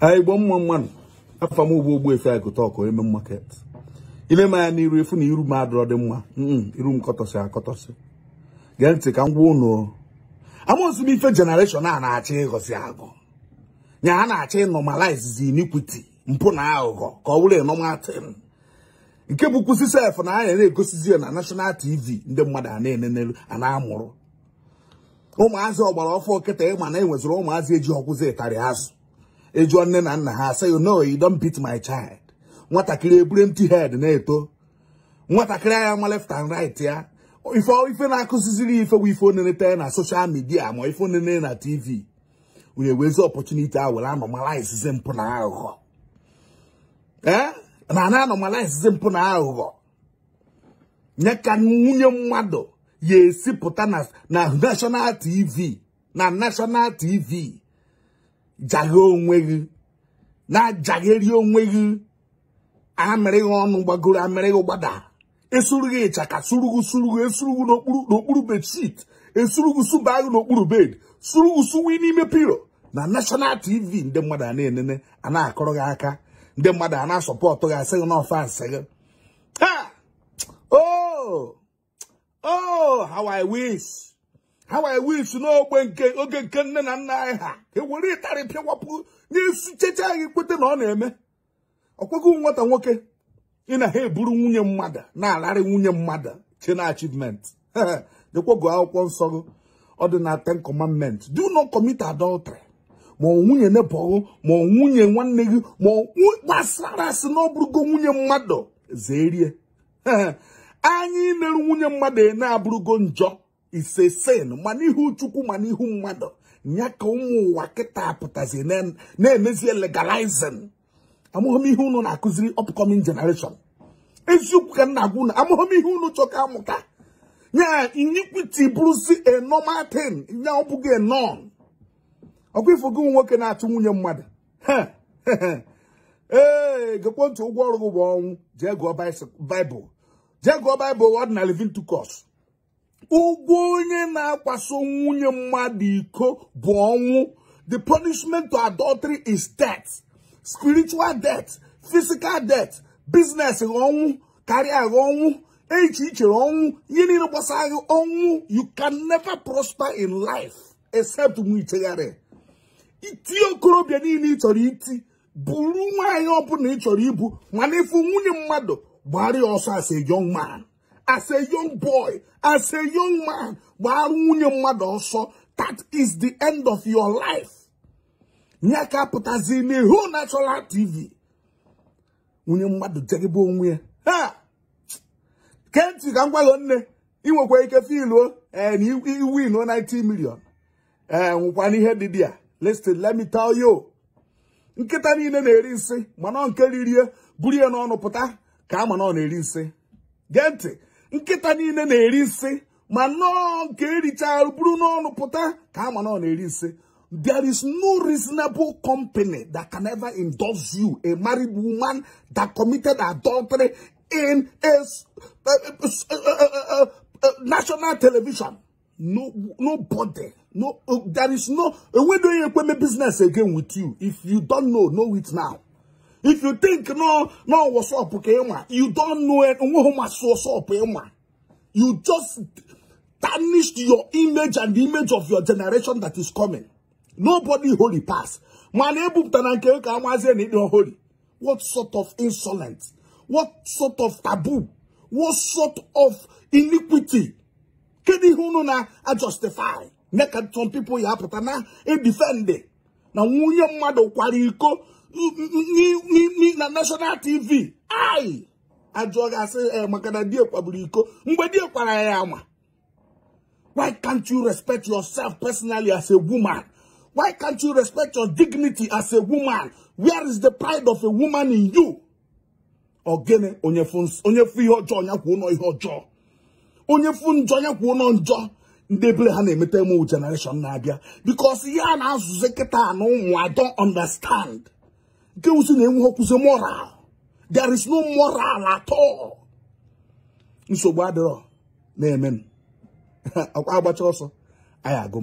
igbo mma mmadụ afa m ugbo ogbu efe agụta eme market ile ma ya n'iru efu na iru m adọrọ dị mma iru m akọtọsị gee ntị ka m gwa ụnụ amaozi m ife jenereshọn a na-achọ ịghọzi agụ nya ha na-achọ zi inikwiti mpụ na aghụghọ ka ọ bụrụ ịnọmatin nke bụ kwụsị sef na anya na-egosizi ya na nashọnal tv ndị mmadụ a na-enenelu ana amụrụ ụmụazị ọgbara ọfọ nkịta ịma na enweziri ụmụazị eji ọkwụzi ịtarị azụ ịjụọ nne na nna ha say oh, no you don't beat my child nwatakịrị eburu empty head na-eto nwatakịrị anya nwa left and right ya ife ife na-akụziziri ife bụ ife na social media ma ife onene na tv were wezi opportunity a were anomalize mpụ na aghụghọ eh? na na mpụ na aghụghọ nye ka nwunye mmadụ ya esi na national tv na national tv jaghe onwe gị na-ajagheri onwe gị amịrịghị ọnụ gbagoro amịrịghị gbada esuru gị ịchaka surugu surugu esurugu n'okpuru bedshit esurugu suba gị n'okpuru bed surugu suwe n'ime pilo na national tv ndị mmadụ a na-enene a akọrọ gị aka ndị mmadụ a na gị asị gị n'ọfa asị gị ha O! Oh! O! Oh, how i wish ha wee wisi n'ogbe nke oge nke nne na nna anyị ha ewere ịtarị wapụ n'isi cheche anyị kwete na ọ na-eme ọkwego nwata nwoke ị na ha eburu nwunye mmadụ na-alarị nwunye mmadụ chena achievement dekwago akwụkwọ nsọ gị ọ dị na ten commandment do not commit adultery ma nwunye nebọghị ma nwunye nwanne gị ma gbasara asị na ọ nwunye mmadụ zerie anyị na-eru nwunye mmadụ na-abụrụgo njọ ise sin ma n'ihu chukwu ma n'ihu mmadụ ya ka ụmụ ụwa kịta pụtazi na-emezie legalizing amụghị ihe unu na-akụziri upcoming generation eziokwu ka nna na-agwa unu amụghị ihe unu chọ ka amụta ya iniquity bụrụzi a e normal thing ya ọ bụghị a norm ọkwa ifogo nwoke na-achụ nwunye mmadụ ee gekwe ntụ ụgwọ ọrụ gị bụ ọnwụ jee gụọ baịbụl jee gụọ baịbụl ọdịnal living to cost ụgwọ onye na-akwaso nwunye mmadụ iko bụ ọnwụ the punishment to adultery is death spiritual death physical death business ọnwụ karịa ọnwụ echi ichere ọnwụ ihe niile ọnwụ you can never prosper in life except mgbe ichegharị iti okorobịa niile ị chọrọ iti bụrụ nwaanyị ọbụla ị chọrọ ibu mana ịfụ nwunye mmadụ gbara ọsọ as as a young boy, as a young man, gbara nwunye mmadụ ọsọ, that is the end of your life. nyaka ka apụtazi n'ihu National TV. Nwunye mmadụ jegebe onwe ya. Ha! Kenti ka ngwalụ nne, ị nwekwa ike filuo oh, win 90 million. Ee eh, nwekwana ihe dị dị ya. Listen, let me tell you. Nkịta niile na-eri nsị, mana nke ririe, buru ya n'ọnụ pụta ka ama na ọ na-eri nsị. nkịta niile na-eri ma nọọ nke buru n'ọnụ pụta ka ama na na-eri there is no reasonable company that can ever endorse you a married woman that committed adultery in a, national television no nobody no uh, there is no we don't even business again with you if you don't know know it now if you think no, no, what's up, okay, You don't know it. What's up, eh, You just tarnished your image and the image of your generation that is coming. Nobody holy pass. holy. What sort of insolence? What sort of taboo? What sort of iniquity? Kedi hunu na a justify. some people ya putana e eh, defend. Na nwunye mmadu kwari na national tv ai ajụọ gasị eh, maka na diekwa bụrụ iko mgbe diekwara ya ama why can't you respect yourself personally as a woman why can't you respect your dignity as a woman where is the pride of a woman in you ogene onye fu ihe ọjọọ ya kwuo nọ ihe ọjọọ onye fu njọ ya kwuo nọ njọ ndị ha na-emeta emo generation na-abịa because ya na-azụzi kịta na ụmụ I don't understand Girls in the moral. There is no moral at all. Nsogbu adịrọ na-eme m. Akwa agbacha ọsọ, anyị agụ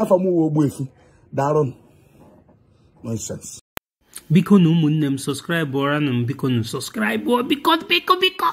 Afọ mụwa uwe Ogbuefi, daalụ Biko na ụmụnne m sọskraịbụra na